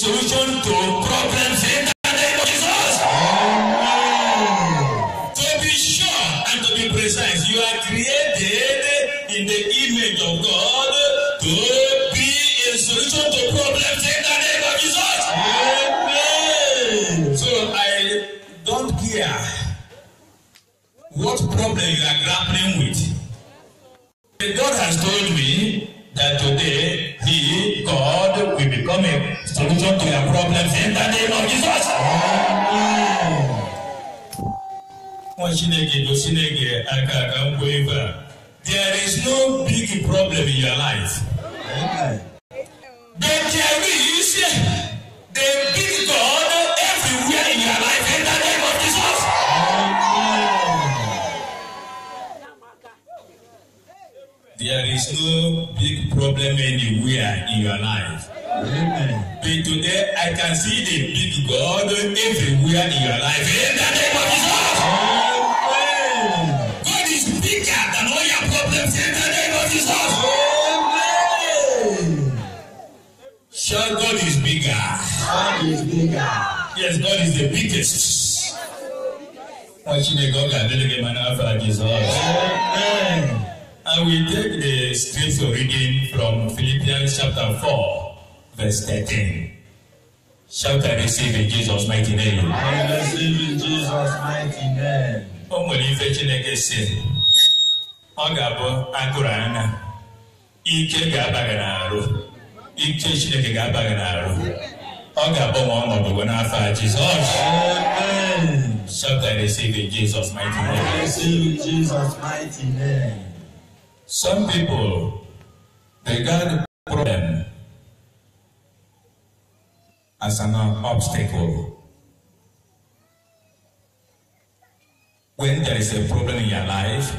solution to problems solution to your problems in the name of Jesus. Nwa Chineke bụ Chineke aka aka nkwa ebe There is no big problem in your life. Okay. But there is the big God everywhere in your life in the name of Jesus. There is no big problem anywhere in your life. But today I can see the big God everywhere in your life. In the name of Jesus. Amen. God is bigger than all your problems. In the name of Jesus. Amen. Sure, God is bigger. God is bigger. Yes, God is the biggest. Watching the God and the man after Jesus. Amen. I will take the scripture reading from Philippians chapter 4. verse 13. Shout I receive in Jesus' mighty name. I receive in Jesus' mighty name. O nwere ife Chineke si, ọ ga-abụ agụrụ anya, ike ga-aba gị n'arụ, ike Chineke ga-aba gị n'arụ, ọ ga-abụ ma ọnọdụ n'afọ Shout I receive in Jesus' mighty name. I receive in Jesus' mighty name. Some people, they got a problem as an obstacle. When there is a problem in your life,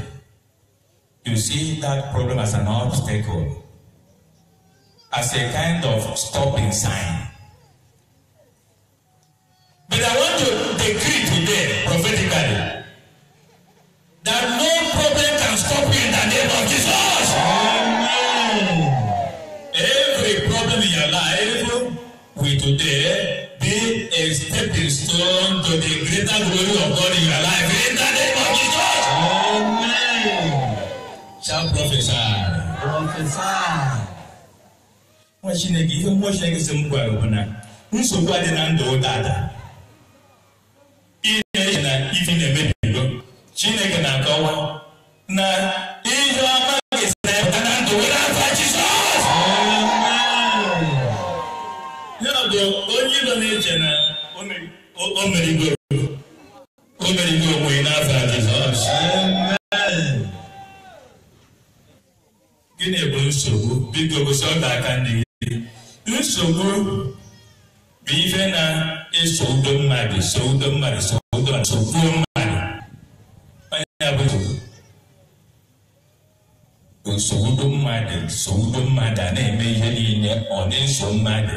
you see that problem as an obstacle, as a kind of stopping sign. But I want to decree today prophetically that no today be a stepping stone to the greater glory of God in your life in the name of Jesus. Amen. Shall prophesy. Prophesy. nwa chineke ihe mmụọ chineke si m gwara bụ na nsogbu adị na ndụ ụdada ihe na ife na-emebigo chineke na-akọwa na bụ onye nọ na-eche na o merigoro onwe ya n'afọ a Jizọs gịnị bụ nsogbu biko gosi ọdụ aka ndị gị nsogbu bụ ife na-eso udo mmadụ so udo mmadụ so udo nsogbuo mmadụ onye bụ nsogbu udo mmadụ so udo mmadụ a na-eme ihe niile ọ na-eso mmadụ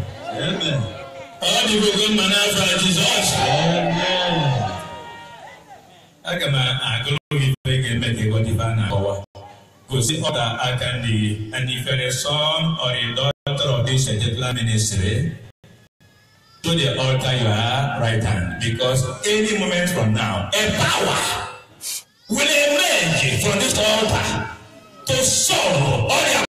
all the people wey man have for jesus. aga m agụrụ gị ife ga-eme ka ịghọta na-akọwa gosi ọda aka ndị gị and if you are son or a daughter of this particular ministry to the altar you are right hand because any moment from now a power will emerge from this altar to solve all your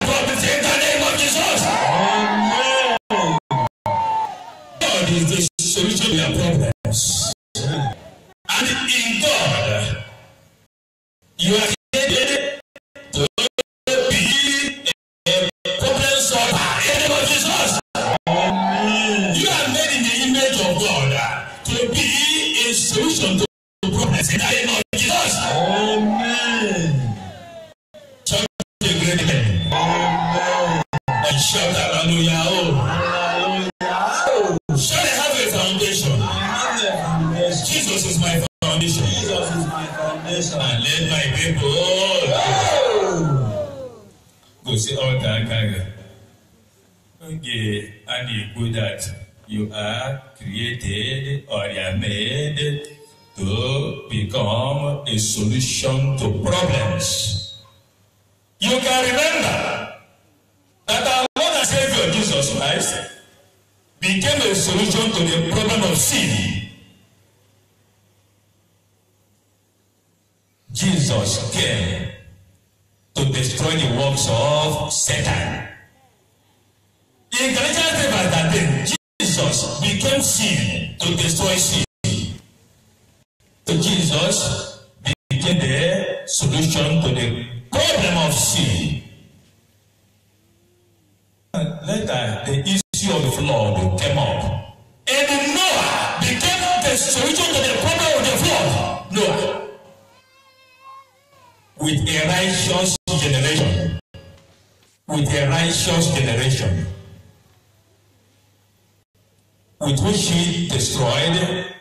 is the solution to your problems. And in God, you are headed to be a problem solver. In the name of Jesus, you are made in the image of God to be a solution to problems. In the name of Jesus. Amen. Amen. And Shout hallelujah. Jesus is my foundation. And let my people all go see all that gaga. Okay, and you put that you are created or you are made to become a solution to problems. You can remember that our Lord and Savior Jesus Christ became a solution to the problem of sin. Jesus came to destroy the works of Satan. In Galatians 3 verse 13, Jesus became sin to destroy sin. So Jesus became the solution to the problem of sin. And later, the issue of the flood came up. And Noah became the solution to the problem of the flood. Noah with a righteous generation. With a righteous generation. With which he destroyed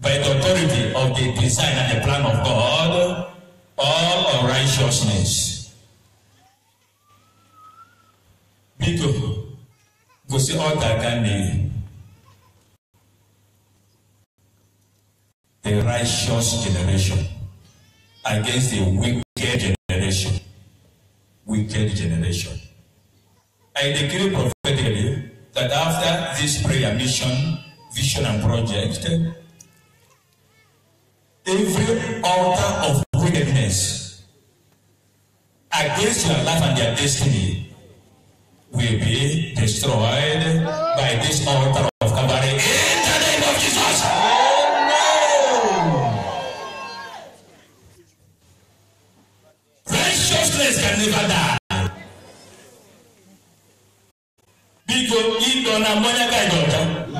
by the authority of the design and the plan of God all unrighteousness. Biko, gosi ọta ka mmiri. A righteous generation against a wicked generation. Wicked generation. I decree prophetically that after this prayer mission, vision and project, every altar of wickedness against your life and your destiny will be destroyed by this altar biko ịnọ na mmanya ka ịdị ọcha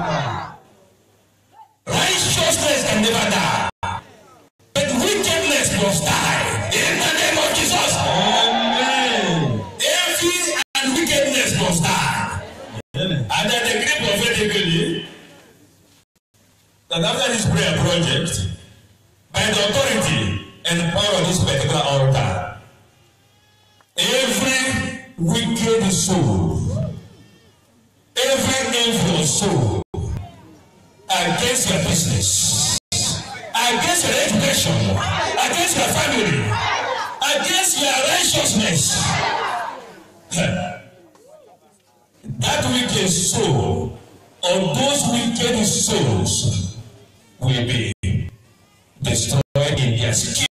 righteousness can never die but wickedness must die in the name of jesus amen evil and wickedness must die and the dey gree prophetically eh? that after this prayer project by the authority and power of this particular altar every wicked soul every your soul against your business, against your education, against your family, against your righteousness. that wicked soul or those wicked souls will be destroyed in their skin.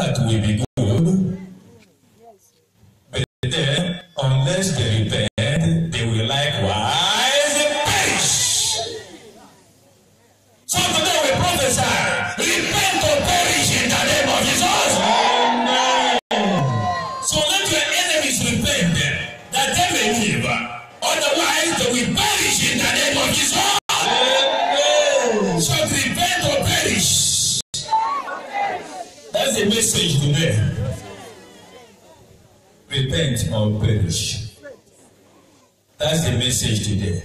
that will be good, but then, unless they repent, message today. Né?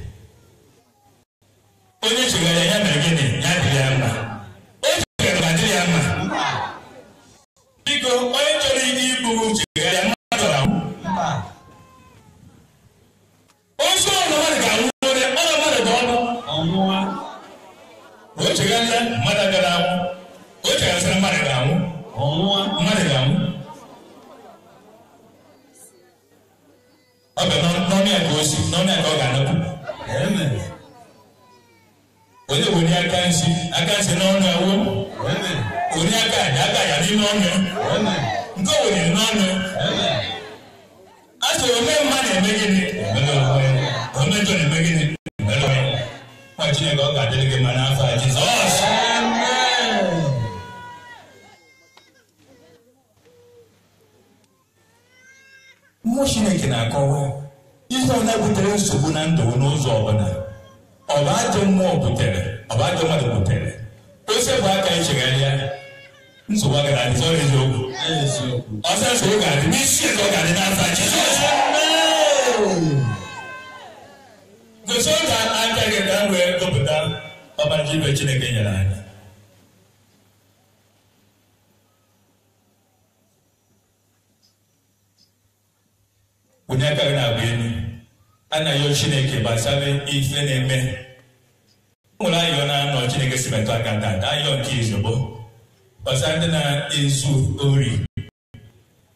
oní kò ní aka ń ṣe aka ń ṣe n'ọnù awo kò ní aka àdáka yà ní n'ọnù nke wò ní n'ọnù asọ ome mma na-eme gịnị ome njọ na-eme gịnị nwa chineke ọ ga-adịrị gị ma n'afọ a jizọs mmụọ chineke na-akọwa ihe ọ na-ebutere nsogbu na ndụ n'ụzọ ọbụla ọ bụ ajọ mmụọ butere ọ bụ ajọ mmadụ butere bụ aka anyị ya nsogbu agara adị zọrọ eziokwu ọsọ nsogbu ga-adị n'isi ga-adị n'aza jizọs gụpụta chineke nyere anyị aka gị na a na-ayọ chineke gbasara ife na-eme nwere ayọ na-anọ chineke si metụ aka tata ayọ nke izugbo gbasara ndị na-ezu ori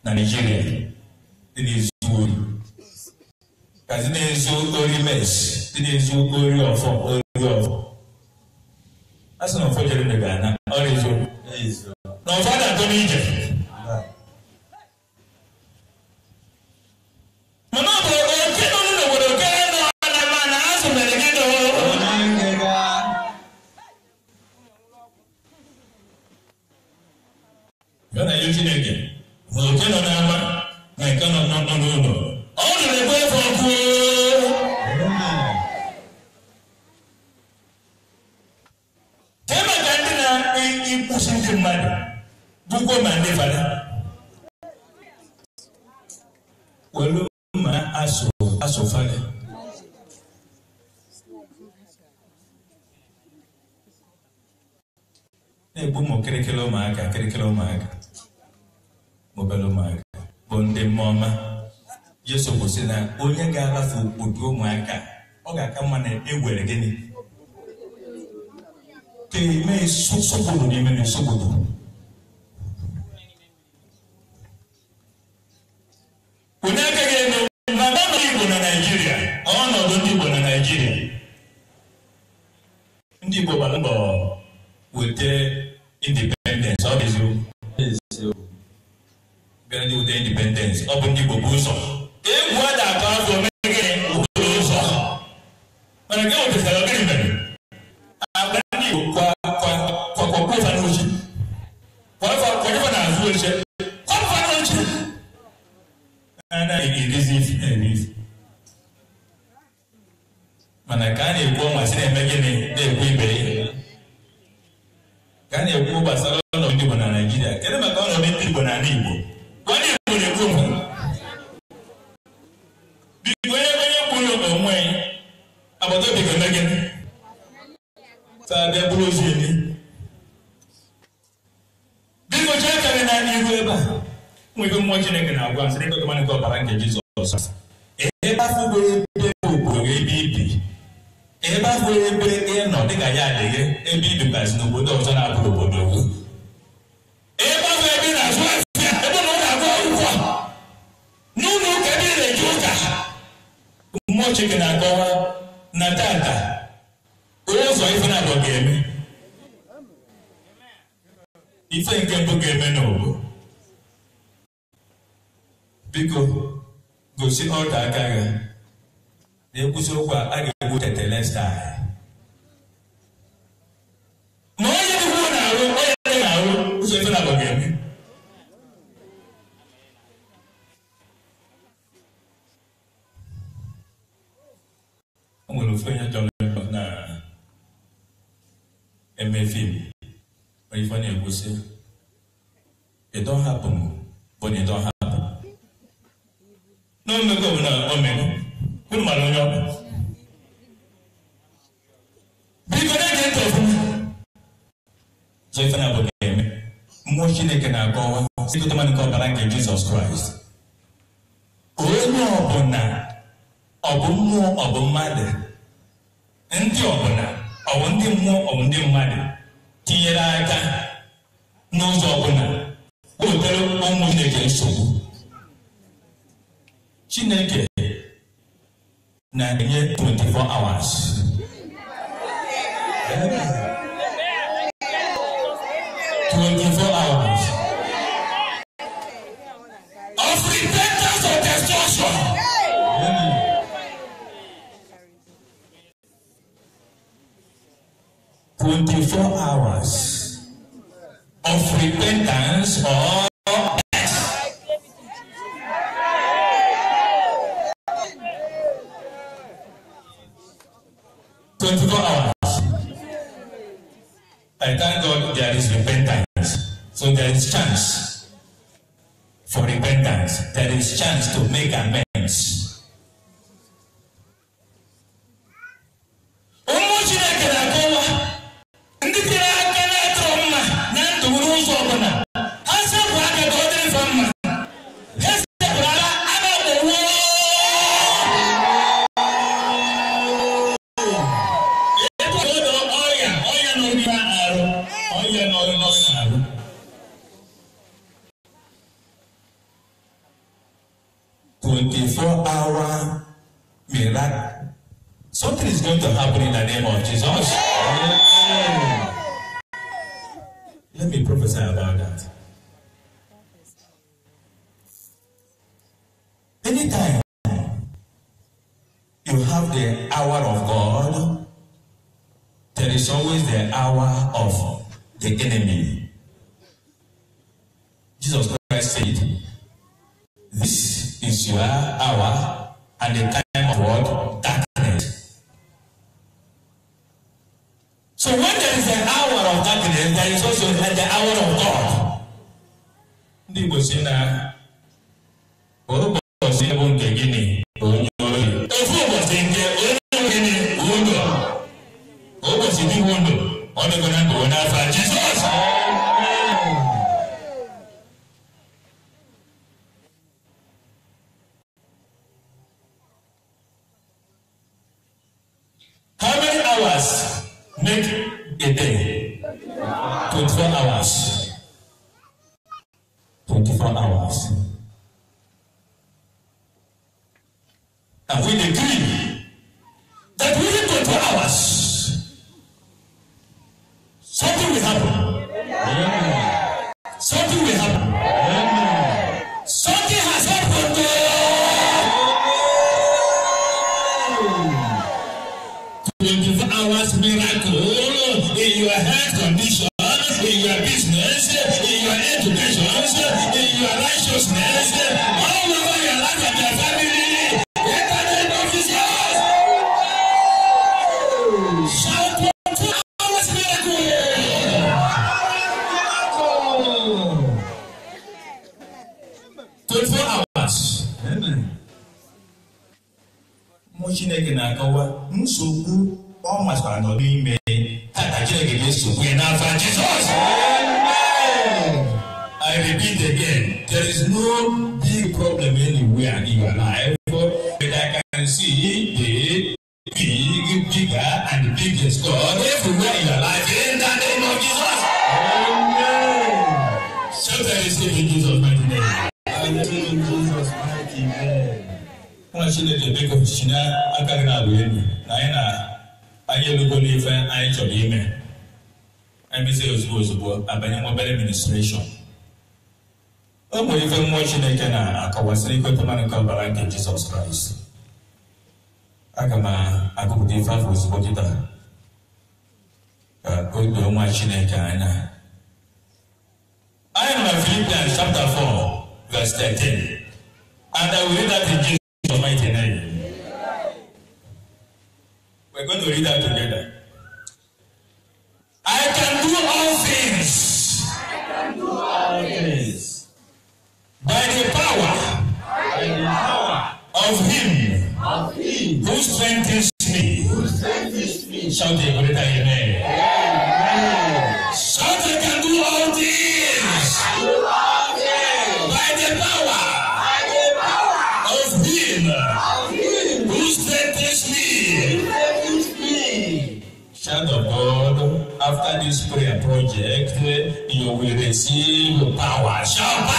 na naijiria dị na-ezu ori ka dị na-ezu ori mes dị na-ezu ori ọfọ ori ọfọ a sị na ụfọdụ jere ga-ana ọrịa eziokwu na ụfọdụ atọ n'ije mkpụrụ ụmụaka ọ ga-aka mma na egwere gịnị ka eme nsogbu n'ime Igbo na Naịjirịa ọnọdụ ndị na Naịjirịa ndị Igbo gbara weta ọ bụ ndị Igbo bụ ụzọ egwu ló ń ṣe kọ́nù fún ló ń ṣe. ana ìrísí fún ìrísí. mana ka a na-ekwu ọnwa si na-eme gịnị na-ekwu ibe ya ka a na-ekwu gbasara ọnọdụ ndị Igbo na Naịjirịa kedu maka ọnọdụ ndị Igbo na ala Igbo onye Igbo na-ekwu mụ biko onye onye kwuru ụlọ onwe agbata obi ga-eme gịnị taa bịa bụrụ ozi elu ya karịrị na n'iru ebe a nwebe mmụọ chineke na-agwa m sị ebe nke ọbara nke jizọs ebe afọ ebe obodo e ebe ibi ebe afọ nwere ebe ị dịka ya adịghị ebe ibibazi n'obodo ọzọ na obodo gị na-azụ ebe n'ụlọ ebe na mmụọ chineke na-akọwa na tata ụzọ ife na-abọ ga-eme ife nke mbụ ga-eme n'obu biko gosi ọdụ aka gị na-ekwusi okwu a ga-egbu tetele staa ma onye dịkwuo na-arụ onye dị na-arụ ụzọ ife na ga-eme o nwere ofe onye chọrọ ife na-ekwu sị ịdọhapụ m bụ na ịdọhapụ na omego bụ na omego unu mara onye ọbụ biko na-ege ntị ọfụma zọ ife na-abụ ga-eme mmụọ chineke na-akọwa sikọtama nke ọbara nke jizọs kraịst onye ọbụla ọ bụ mmụọ ọ bụ mmadụ ndị ọbụla ọ bụ ndị mmụọ ọ bụ ndị mmadụ tinyere aka n'ụzọ ọbụla wetara ụmụ Chineke nsogbu Chineke na-enye 24 hours twenty-four hours repentance or death. Twenty-four hours. I thank God there is repentance, so there is chance for repentance. There is chance to make amends. So when there is an hour of darkness, there is also the hour of God. Ndị Igbo si na ụbọchị bụ nke gịnị onye oyi. Ofu ụbọchị nke onye gịnị udo. Ụbọchị dị udo, ọ dịkwa ndụ onye Jizọs. 24 hours. Mmụọ Chineke na-akọwa nsogbu ọ masịkwara nọ n'ime tata Chineke ga-esogbu ya n'afọ Jizọs. I repeat again, there is no big problem anywhere in your life, but I can see the big, bigger and biggest God. mmadụ chineke ebe ka ọchịchị na aka gị na-abụ elu na anyị na anyị elugo n'ife anyị chọrọ ime emezie ozugbo ozugbo abanye nwa obere Ụmụ ife mmụọ chineke na-akọwasịrị ikweta mmadụ nke ọbara nke jizọs kraịst aga m agụpụta ife afọ ozugbo kịta ka o doo nwa chineke anya anyị nọ na filipians chapter 4 verse 13 and i will read that in jesus mighty name. We're going to read that together. I can do all things. I can do all things. By the power. By the power. Of him. Of him. Who strengthens me. Who strengthens me. Shout a greater amen. Yeah. jẹ́ pé ìyòwèrè sí olùpàwà ṣọ́pàwà.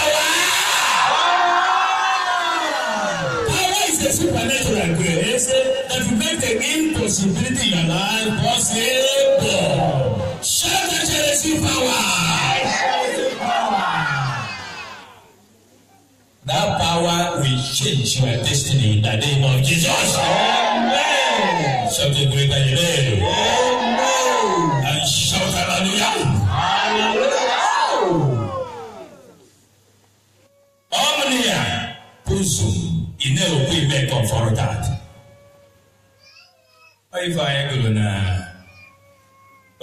Power is a supernatural grace that will make the impossibility in your life possible. Shout that you receive power. That power will change your destiny in the name of Jesus.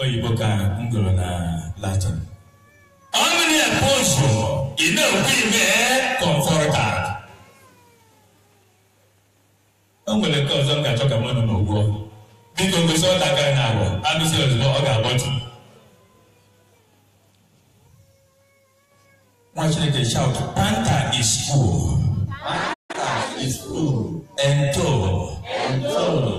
oyibo ka m gụrụ na latin ọnụ na-ekwu ụzọ ị na-ekwu ime kọmfọrtat o nwere nke ọzọ m ga-achọ ka mmadụ na ụgwọ biko gosi ọ dakara na agwọ agụsị ozugbo ọ ga-agbọtụ nwa chineke shout panta is cool, panta is full ento ento ụnọ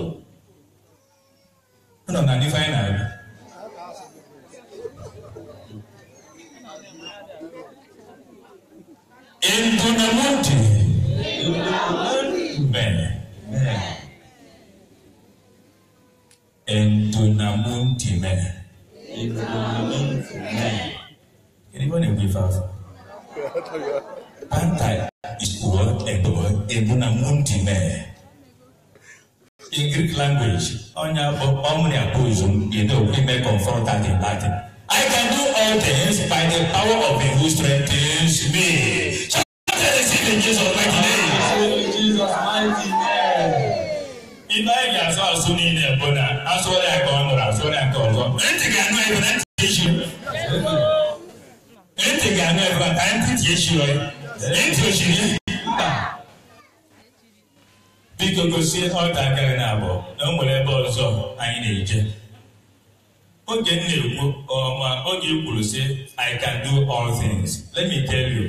onya omnia poison you know we may confront that i can do all things by the power of him who strengthens me so let us receive in jesus mighty name. jesus mighty name. ibrahim yasọ asọ niile bụ na asọ ya ka ọ nụrụ asọ ya ka ọzọ ntị ga-anụ ebe na ntị echi ntị ga-anụ ebe ka ntị echi ntị ochiri biko gosi ọtakịrị na na o nwere ebe ọzọ anyị na-eje oge m na-ekwu ọma oge kwuru si i can do all things let me tell you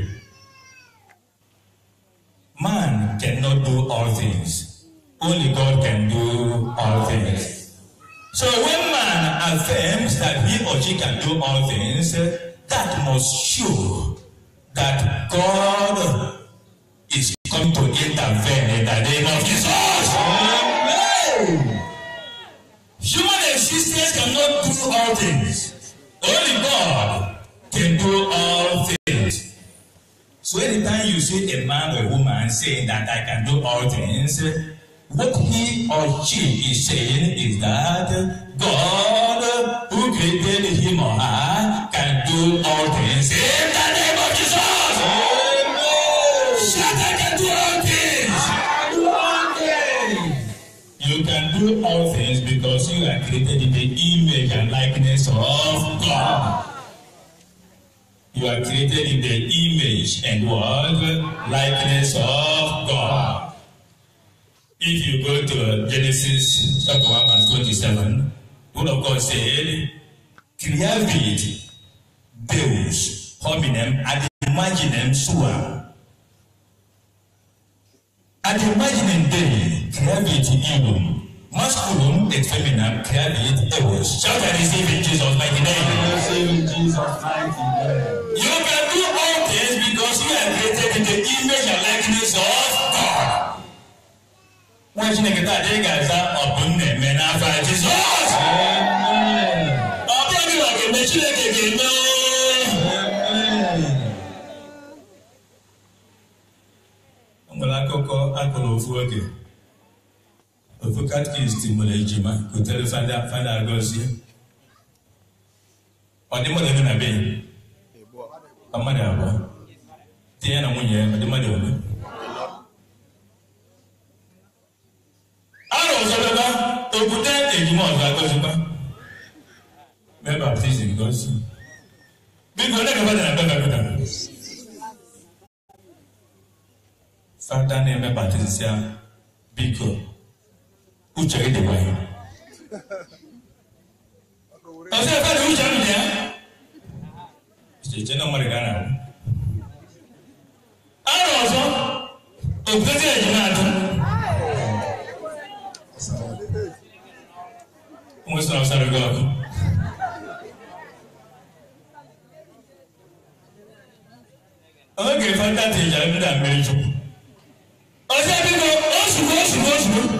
man cannot do all things only God can do all things so when man affirms that he or she can do all things that must show that God him to intervene in the name of Jesus. Amen. Human existence cannot do all things. Only God can do all things. So anytime you see a man or a woman saying that I can do all things, what he or she is saying is that God who created him or her can do all things. do all things because you are created in the image and likeness of God. You are created in the image and what? Likeness of God. If you go to Genesis chapter 1 verse 27, God of God said, Creavit, Deus, hominem, ad imaginem sua. Ad imaginem them creavit illum. Masculine and feminine can be divorced. Shout and receive in Jesus' mighty name. Receive in Jesus' mighty name. You can do all things because you are created in the image and likeness of God. Wọ́n ṣe ní kíkọ́ àdé gàdá ọ̀bùn ní ẹ̀mẹ́ náà fà Jesus. Ọ̀bùn ní wàá kèmé Chineke kèmé. Ọ̀gbọ̀n akọkọ go òfu oge òkú katikist mọlẹ jìmá kò tẹlẹ fada fada agọsi ọdí mọlẹ nínú abẹ ọmọdé àbọ tíyẹ na nwunye ọdí mọlẹ ọmọ. ara ọsọ bẹba òkúta ejima ọsọ agọsi bá mẹ baptist gọsi bí kò lẹ́nu fada na bẹ́ẹ̀ bẹ́ẹ̀ bẹ́ẹ̀ fada ní ẹ mẹ baptist ya bí uche ide wa yi ọsẹ ẹfẹ de uche mi dẹ ìṣèjẹ náà wọn lè gánà rẹ ara ọzọ òkúta tí ẹ̀yìn náà dùn wọn sọ ọsàn rẹ gọọdù. ọmọ kẹfà ń dàtẹ̀ ìjà ń dà mẹ́jọ ọsẹ bí mo oṣù oṣù oṣù.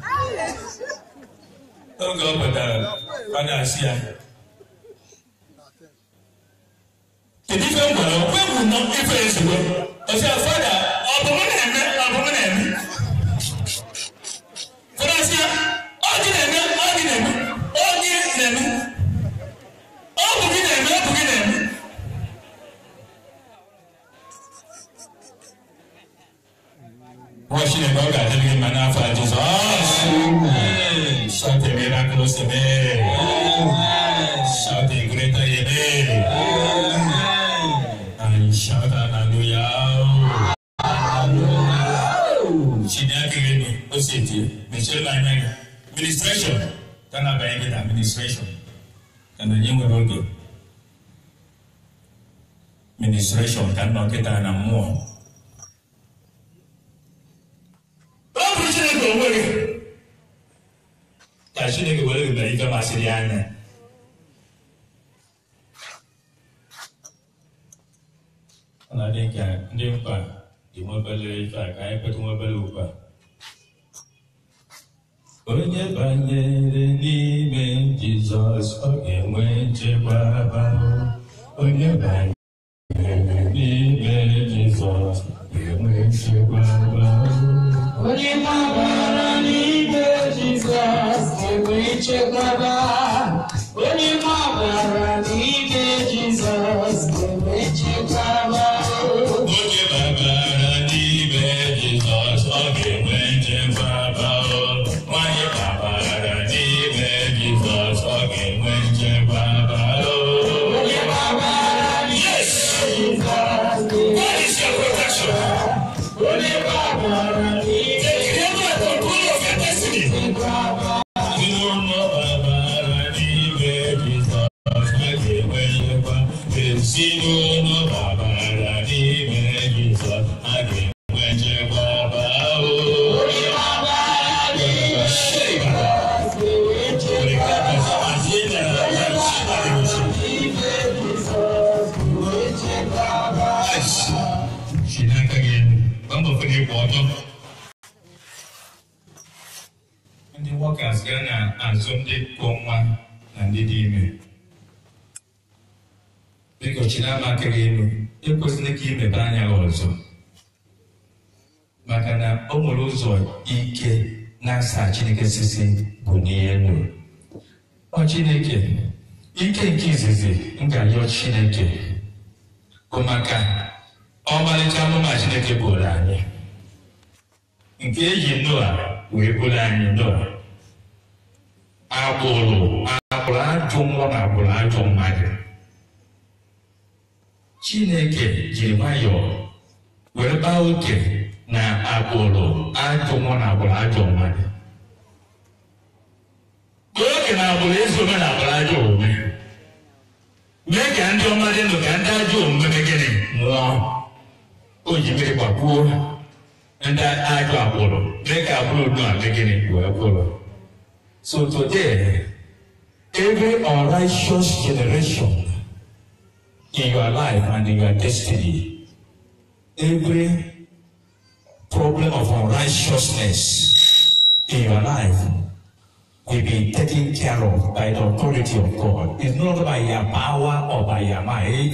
oge ọ pụtara ọ na-asị ya kedu ife m gwara okwe bụ nọ ife ezigbo ọsị fada ọ bụ m na-eme ọ bụ m na-eme fọdasị ya ọ dị na-eme ọ dị na-eme ọ dị na-eme ọ bụ gị na-eme ọ bụ gị na-eme washine bawga tebige manafa jesus shout a miraculous amen shout a great amen and shout hallelujah shine akere ni o se tie michelle lanyanyi ministration tana bayangida administration kana nyingo rogo ministration kana oketana muo Chineke were mere ife masịrị ya anya ọ na-adị ka ndị mkpa dị nwa obere ife a ka anyị kweta nwa obere ụkpa onye banyere n'ime Jizọs ọ ga-enwe nchekwa abalị onye banyere n'ime Jizọs ga-enwe asaa chineke sisi bụ n'ihe ndụ ọ chineke ike nke izizi nga yọọ chineke bụ maka ọmalịcha amụma chineke bụrụ anyị nke eji noa wee bụrụ anyị noa agbụrụ agbụrụ ajụ nwa na agbụrụ ajụ mmadụ chineke jiri nwayọọ wee baa oke na agbụrụ ajụ nwa na agbụrụ ajụ mmadụ Chineke na-agbụrụ ezi omume na-agbụrụ ajọ omume mee ka ndị ọma dị ndụ ka ndị ajọ omume megịnị nwụọ o ji mmiri gbagbuo ndị ajọ agbụrụ mee ka agbụrụ unu a megịnị wee gwụrụ so today every unrighteous generation in your life and in your destiny every problem of unrighteousness in your life will be taken care of by the authority of God. It's not by your power or by your might.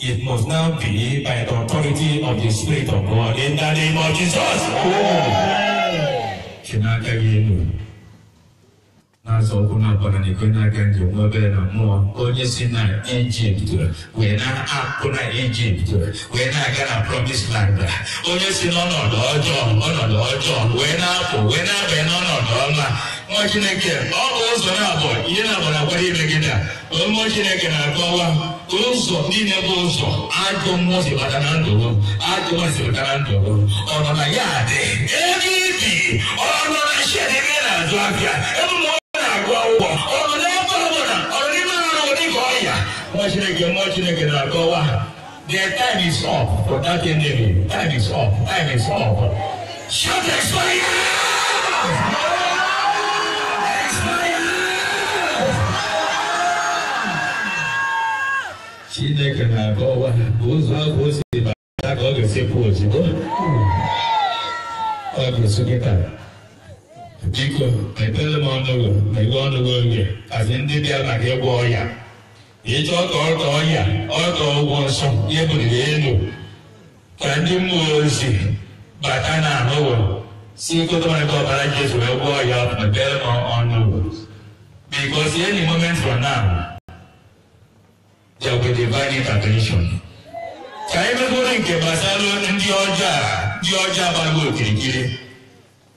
It must now be by the authority of the Spirit of God. In the name of Jesus. Oh. na-azọ na na-aga na onye si na wee na aga na land onye si n'ọnọdụ ọjọọ ọnọdụ ọjọọ wee na-apụ wee na-abịa n'ọnọdụ ọma ọ na chineke na ụzọ nọ dị ebe nọ na ụgwọ ụgwọ ọnọdụ ebe ọbụla ọdịmma ọrụ dịka ọya nwa chineke nwa chineke na-akọwa their time is up for that enemy time is up time is up shout expire chineke na-akọwa ụzọ ahụ o si bata ka ọ ga-esikwa ozugbo ọ ga-esu gị taa biko mepere m ọnụ ọnụgụ megwe ọnụgụ oge kazi ndị bịa maka ịgwọ ọya ịchọ ka ọka ọya ọka ụgwọ nsọ ya buliri elu ka ndị mmụọ ozi bata na anụgụ si nkụtọrịta ọbara jesu wee gwọ ọya mepere m ọnụgụ because any moment from now there will be divine intervention. ka anyị mekwuru nke gbasara ndị ọjọọ ndị ọjọọ agbagbo okirikiri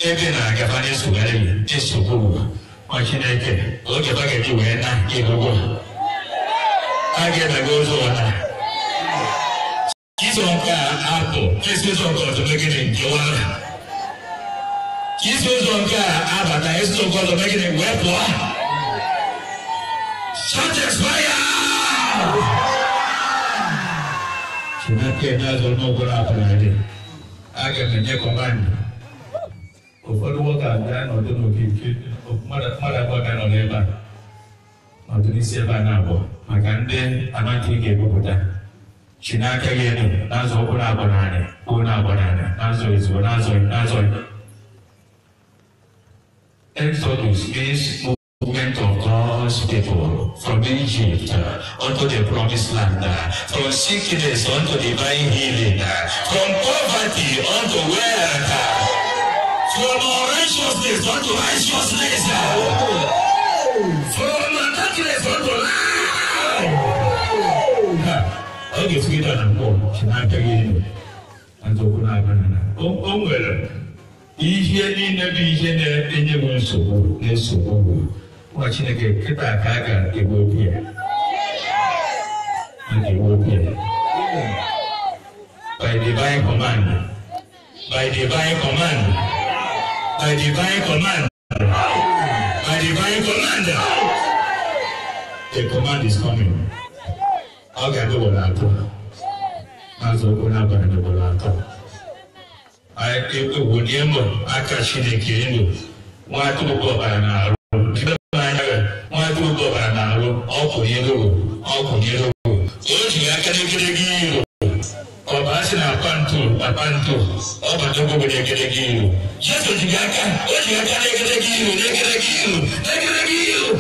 ebe na-agaba na-esogharị na-esokwa ụwa nwa chineke oge ọ ga-eji wee na ebugo a ga-edaga ụzọ ụwa iso nke a apụ esi ụzọ nke ọzọ megide nke wara isi ụzọ nke a abata esi ụzọ nke ọzọ megide wee pụọ satisfaya chineke na-azụ n'ụgwọrọ apụrụ adị a ga-enye kọmanda ụfọdụ nwoke a bịa nọdụ nke mmadụ abụọ ga nọdụ ebe a nọdụ ebe a na abụọ maka ndị amaghị ga-ebupụta chi n'aka gị elu ụkwụ na-abụ n'anya kwuo na-abụ n'azụ ezigbo n'azụ n'azụ Exodus means movement of God's people from Egypt unto the promised land, from sickness unto divine healing, from poverty unto wealth. For righteousness unto righteousness. From darkness unto light. Oge sikita na mbọ chinaka gịnị nzọụkwụ na-abana na o nwere ihe niile bụ ihe na-enye m nsogbu na nsogbu nwa Chineke kịta ka a ga-egbu okwu ya a ga-egbu okwu ya by divine command by divine command I divine command. I divine command. The command is coming. Ọ̀gá ló wọlé àtọ̀. Azọ ọgbọ́n abalẹ̀ ló wọlé àtọ̀. Ewu ni ẹ mọ̀, aka Chineke elu. Wọ́n á tún bọ̀ bàrà n'arụ. Ndị bẹ́ẹ̀ bá ń yára, wọ́n á tún bọ̀ bàrà n'arụ. you. ló wò, ọkùnrin ló wò. sina apanto apanto ọba tó gbogbo ní ẹgẹdẹgẹ yìí o jésù ti ga ká ó ti ga ká ní ẹgẹdẹgẹ yìí o ní ẹgẹdẹgẹ yìí o ní ẹgẹdẹgẹ yìí o.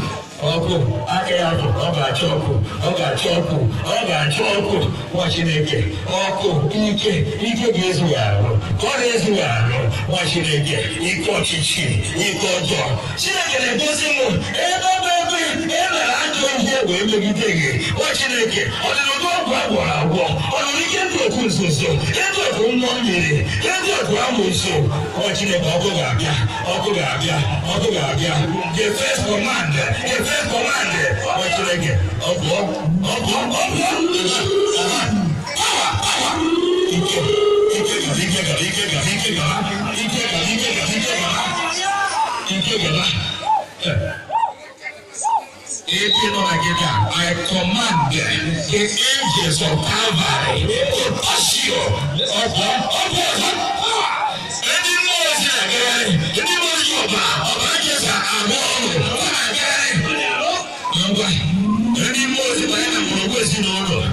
ọkụ aka ya bụ ọ ga-achọ ọkụ ọ ga-achọ ọkụ ọ ga-achọ ọkụ nwa chineke ọkụ ike ike ga-ezu ya arụ ka ọ na-ezu ya arụ nwa chineke ike ọchịchị ike ọjọọ chineke na-egosi m ebe ebe ebe ị mere ajọ ihe wee megide gị nwa chineke ọ dịrị agwọ agwọ ọ nọ n'ike ndị oku nzuzo ndị oku mmụọ mmiri ndị oku amụ nso ọ Chineke ọkụ ga-abịa ọkụ ga-abịa ọkụ ga-abịa the first command the first command ọ Chineke ọkụ ọkụ ọkụ ike ike gara ike gara ike gara ike gara ike gara ike gara ike gara ike gara 18 of Nigeria, I command the angels of Calvary to touch you. Ọ̀pọ̀ ọ̀pọ̀ ọ̀pọ̀ ẹni mú ọ̀sẹ̀ àgẹ́rẹ́ ẹni mú ọ̀sẹ̀ ọ̀bà ọ̀bà jẹ̀sà àbọ̀ ọ̀rọ̀ ọ̀bà àgẹ́rẹ́. Ọ̀gbà ẹni mú ọ̀sẹ̀ báyìí náà mọ̀ ọ̀gbẹ́ sí ní ọ̀rọ̀.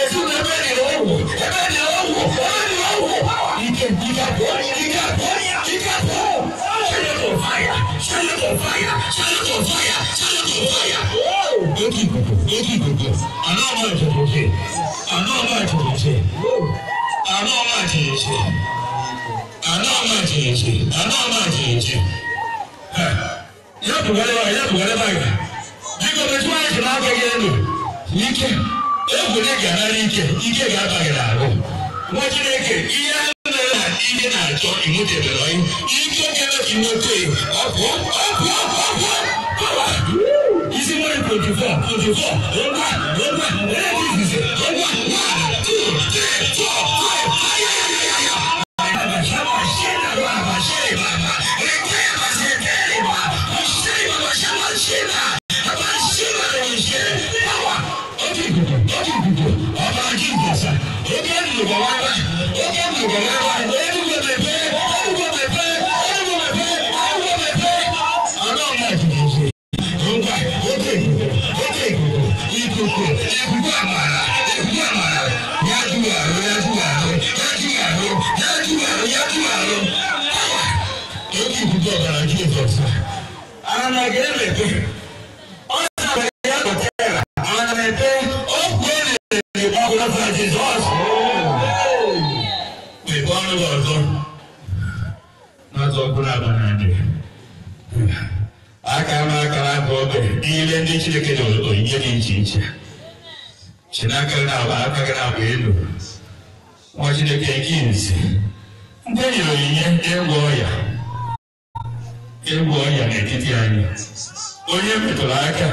Èsù mi bẹ́ẹ̀ ni ó wò ẹ̀bẹ̀ ni ó wò ọ̀rẹ́ ni ó wò. Ike ìdíkà bọ̀ ìdíkà bọ̀ ìdíkà bọ̀ ṣẹlẹ̀ kò fàyà ṣẹlẹ̀ kò fàyà ṣẹlẹ̀ kò fàyà. Yókì ìkòkò, yókì ìkòkò, àná ọmọ ìtòkò ṣe, àná ọmọ ìtòkò ṣe, àná ọmọ ìtòkò ṣe, àná ọmọ ìtòkò ṣe, àná ọmọ ìtòkò ṣe. Yàtò wọlé báyìí, yàtò wọlé báyìí. Jíkọ̀ bẹ tí wọ́n yẹ kí náà kẹ́kẹ́ lò, yíkẹ́, egwu ní gàdá ní ike, ike gà-abà gị n'ahụ. Nwa Chineke, ihe mere na ihe na-achọ imutebere onye, ike kere imete, ọ pụọ, ọ pụọ, ọ pụọ, ọ pụọ. If you fall, if you fall, one, one, one, one, one, one, one, one, two, three, four. na-adị aka ama aka bụ oge niile ndị Chineke nyere onyinye dị iche iche chinaka na-agba aka gị na-agba elu nwa Chineke nke izi ndị e nyere onyinye ịgwọ ọya ịgwọ ọya n'etiti anyị onye metụrụ aka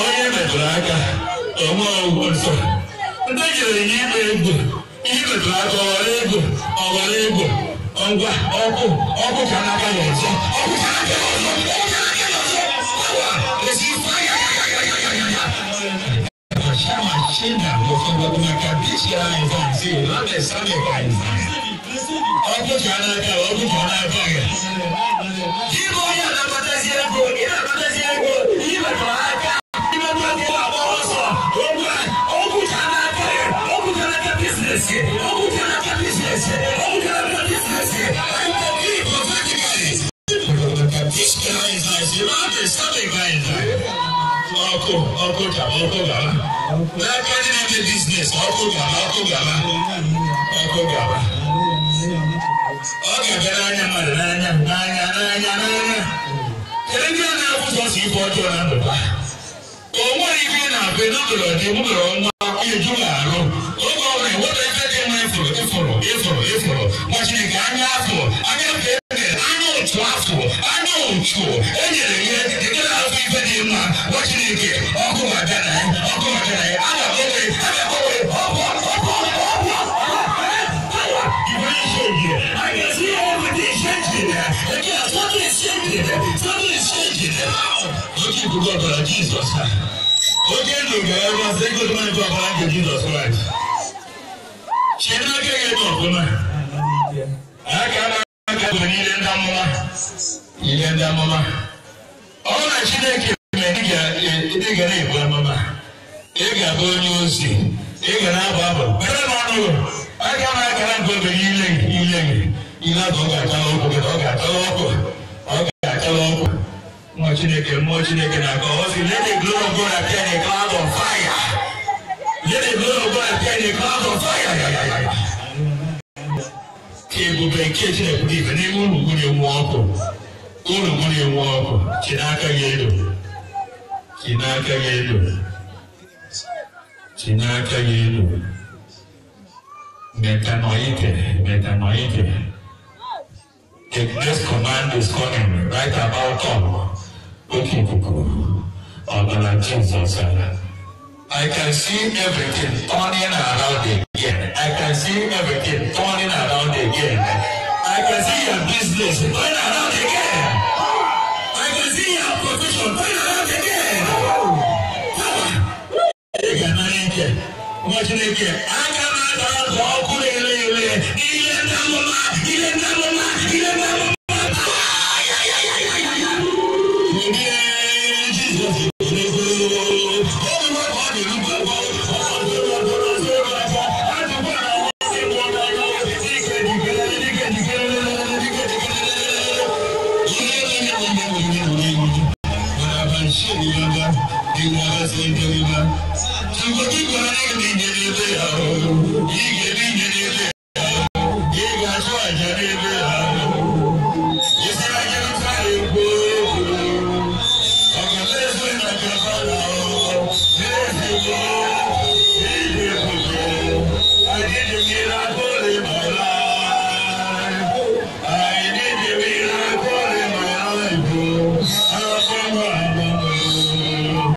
onye metụrụ aka onwe ọgwụ nsọ ndị e nyere onyinye ịgba egwu ihe aka ọghara egwu ọghara egwu ọgbà ọkọ ọkọ kan náà báyọ̀ ọ̀sọ́ ọkọ kan náà báyọ̀ ọ̀sọ́ ọkọ kan náà báyọ̀ ọ̀sọ́ wà èsì fáyàyàyàyàyàyà. àṣà àṣìnà mo fẹ́ gbogbo máa ka bí ṣe ara ẹ̀ fún àti ìlànà ìsàlẹ̀ kan. ọkọ kan náà báyọ̀ ọkọ kan náà báyọ̀. kí ló yà lápá tẹ́sí ẹ̀kọ́ ìlànà tẹ́sí ẹ̀kọ́ ìlànà ọkọ gàlá ọkọ gàlá lágbájú náà play business ọkọ gàlá ọkọ gàlá ọkọ gàlá. ọ ga-abịa n'anya mmadụ n'anya n'anya n'anya n'anya kedu ndị a na-akwụsọ si ife ọjọọ na ndụ ha o nweghị ife ị na-abụ n'ụlọ dị ụlọ nwa eju of Jesus. Oge ndụga ya bụ ase good man for our Lord Jesus Christ. Chiri aka ya ebe ọfụma. Aka na aka bụ n'ile ndị amụma. Ile ndị amụma. Ọ na Chineke mere ị ga na-ebu amụma. Ị ga-abụ onye ozi. Ị ga na-abụ abụ. Bere na ọnụ. Aka na aka na nke obere ile gị ile gị. Ile ahụ ọ ga-atala ọkụ ọ ga-atala ọkụ. Ọ ga-atala ọkụ. mmụọ chineke mmụọ chineke na-aga ọ sị let of God appear in a cloud of fire let the of God appear in a cloud of fire ebube nke chineke pụrụ n'ime enwe ọkụ ụlọgwuri enwe ọkụ chinaka gị elu chinaka gị elu chinaka gị elu metanoite metanoite The next command is coming right about come. open people Ogana Jesus. I can see everything turning around again. I can see everything turning around again. I can see your business turning around again. I can see your profession turning around again. Power. Power. Power. Power. Power. Power. Power. Power. Power.